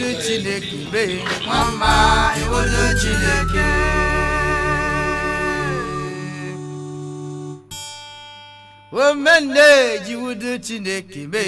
ewudu chineke be nwamba ewudu chineke omende ji chineke be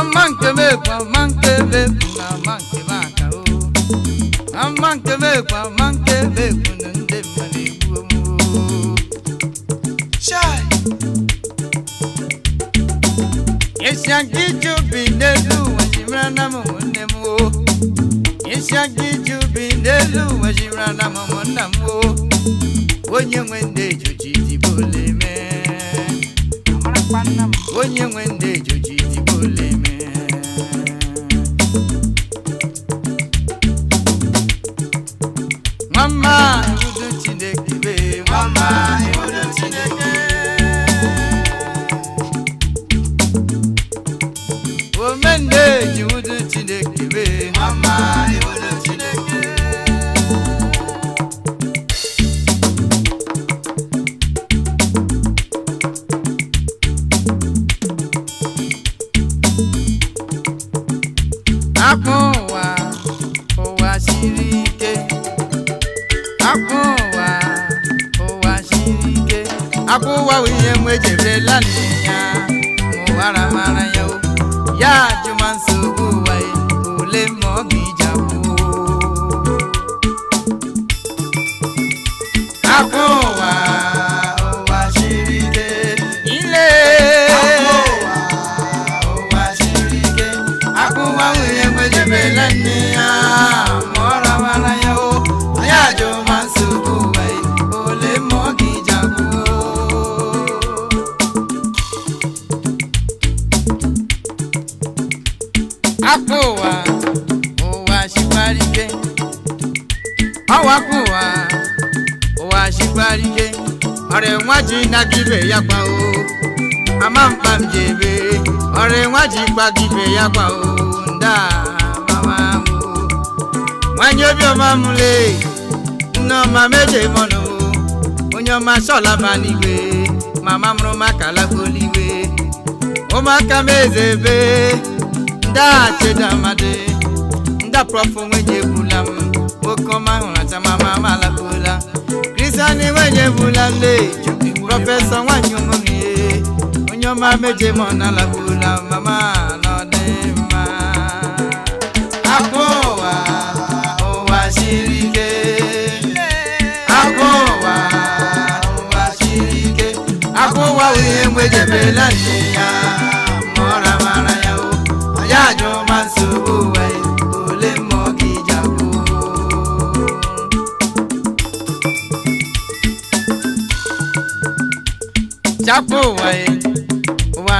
ama nkebekwe ama nkebekwe na ama nkebe aka o ama nkebekwe ama nkebekwe na ndị mmadụ egbuo m esi aga ije obi n'elu ụwa ji mara na m nwanne m o esi aga ije obi n'elu ụwa ji na m nna m o onye nwe ndị ejoji dịbole mee onye nwe ndị ejoji akpụ ụwa ụwa siri ike akpụ ụwa ụwa siri ike akpụ ụwa ihe m ejerela ya ma ụwara mara ya o ya ajụma ole ma ọ ga-ije akwụ akpụ ụwa wakpo ụwa ụwa chịkwarike ọ wakpo ụwa ụwa chịkwarike ọrịa nwa ji naga ya gwa o ama mkpa m ji ọrịa nwa ji gbaga ya gwa o nda mama m nwanyị obiọma m lee nne ọma meje mọnụ onye ọma chọlaba n'igwe mama mụrụ maka lakpoligwe ụmụaka m eze ebe ndachedamadi ndapụrọfụ nwenye ebula m nwoke ọma hụrụ atamama m alakpụla kristian nwenye ebula le prọfesọ nwanyị ụmụhie onye ọma meje m na bula mama na mma akụ ụwa ụwa siri ike ụwa ụwa siri ike ụwa anyụma nsogbu we ole ọ ụwa ụwa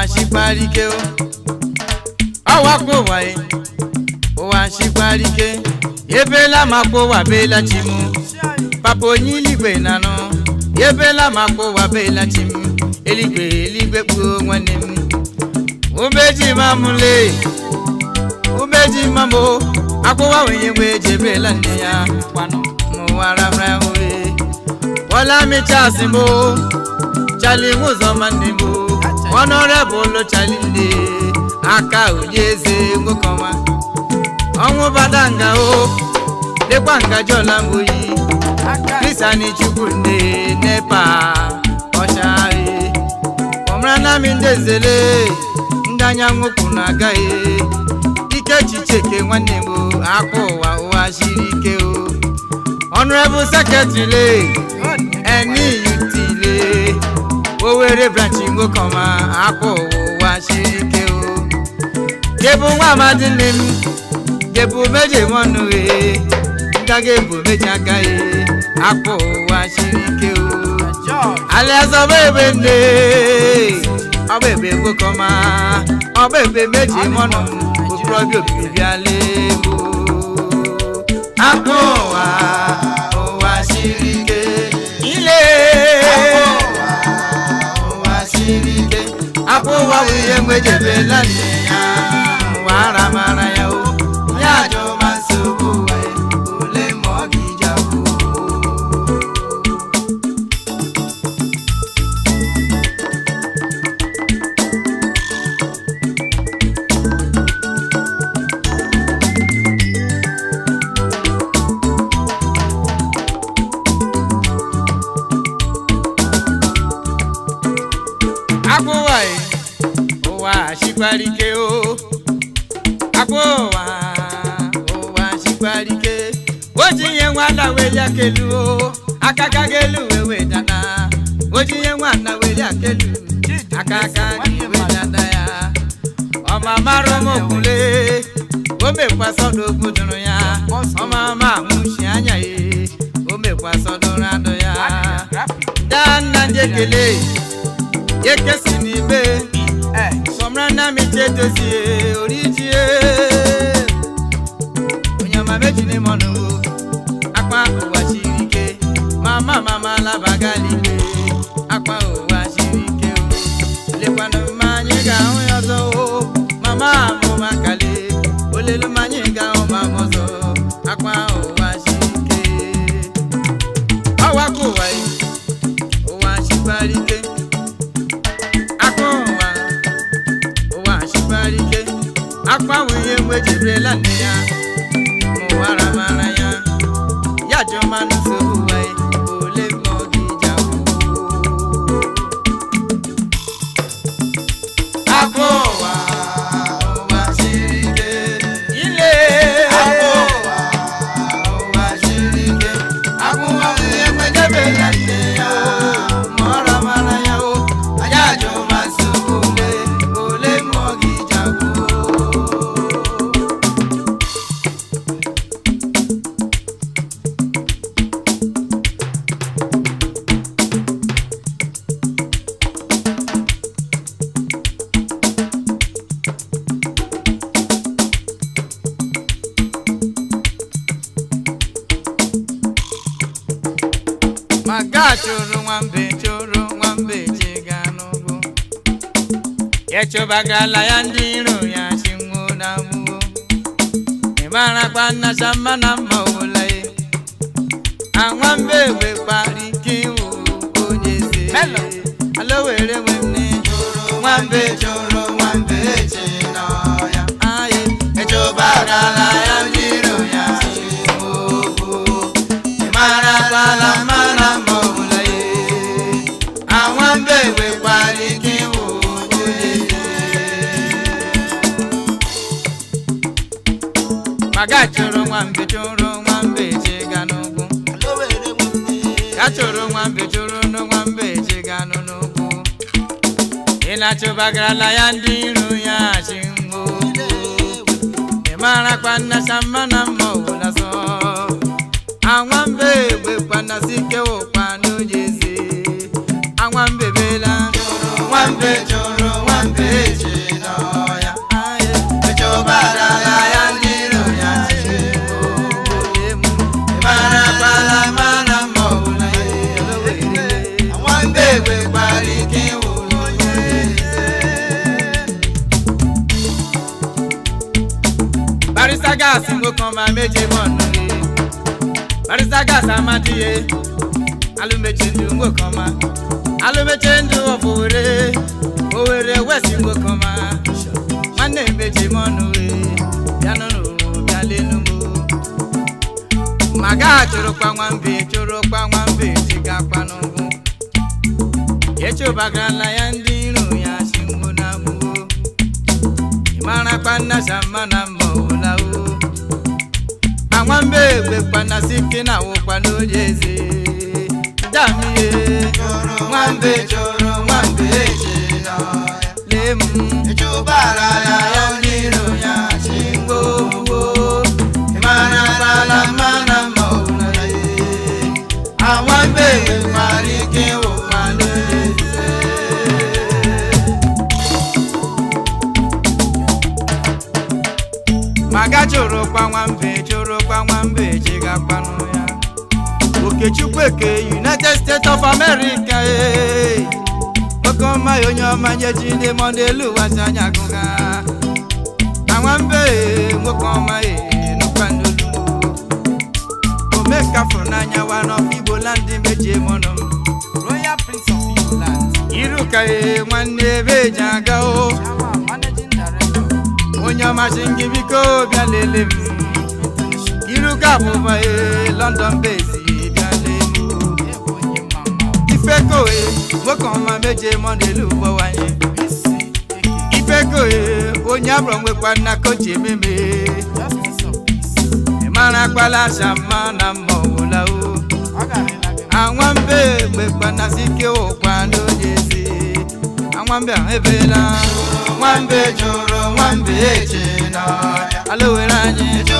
Ọ ụwa ụwa bela chimu papa onye iligwe nanụ ebela makpụ ụwa bela chimu eligwe nwanne m mamule! ubeji mambo akwụwa wenye mgbe ejebrela nne ya mụwararawe bọlamichasị mụ chali nwụzọma nne mụ ọnụrebụlụ chali nne aka onye eze nwokọma ọnwụ bada nga o dịkwa ngaji ọla mgboyi krisani chukwu nne nepa ọchagharị e. ọmara nami ndị ezele ndị anya nwokwu na-agaghị e. nwanne m akwa ụwa ụwa siri ike o honorable secretary eniyutile Owerri ụwa siri ike o nwa amadi nne m meje mọnụ e ndaga ebu meje aka e ụwa siri ike o alaeze ọba ebe nne ọba ebe ọba ebe meje prọjọ bịala ego akpọ ụwa ụwa siri ike ile ụwa siri ike akpọ bụ ihe nwejebela ya ụwa mara ya jikwara o akwa ụwa ụwa jikwara ike o ji ihe nwata wee ya o aka aka ga-elu wee wedana o ji ihe nwata wee ya aka aka gị wedana ya ọma mara m okwule o mekwasọdụ okwu dụrụ ya ọma ama nwụchi anya ya o mekwasọdụrụ adụ ya ndị nna njekele ekele ekesi n'ibe nnamdi edozie orijie onye ọma mejiri m akpa ụwa siri ike mama mama labagali maga chụrụ nwambe chụrụ nwambe chega n'ugwu echụbagala ya ndị iro ya chinwuo na mgbuo ịmarakwa nnacha mma na mma nwa ye anwambe wekwara ike iwu onye eze alowere nwanne nwambe chụrụ chụrụ nwa mbe chụrụ nwa mbe chịga n'ugwu ka chụrụ nwa mbe chụrụ nwa mbe chịga n'ugwu ị na ya ndị iro ya chi ngwo ị mara nnacha mmanụ na mma ọbụla sọ anwa barisa gas mo kan ma meje mọnu ye barisa gas amadiye alumeche ndu mo kan ma alumeche ndu ofowere owere wesi mo kan ma nwanne meje mọnu ye bịanụrụ bịalenu mo maga chorokpa nwambe chorokpa nwambe tigakwa n'ugwu echobagarala ya ndị iro ya si na nwamba egbe kpana site na awụkwa n'oye eze damiye nwamba chọrọ maga chụrụ kpanwambe chụrụ ga chigakpanụ ya okechukwuke united states of america ee eh. nwoke ọma onye ọma nye ji monde mọdụ elu ụwazi anya agụga na nwambe nwoke ọma eh, nụkwanolu omeka fụrụ n'anya wa n'ọfụ igbo land meji mọnụ royal prince of igbo iruka eh, nwanne ebe ji aga o oh. onye ọmasị gị biko bịa lele m iruka abụba e London base bịa lee m ifekoe nwoke ọma meje mọnelu ụgbọ wanye ifekoe onye abụrọ nwekwa nna kochi E mara akpala shama na mma ọwụla o anwambe gbekwanasike ụkwa n'onye ezi anwambe ahụ nwambe jụrụ nwambe eche n'ọhịa ala were anyị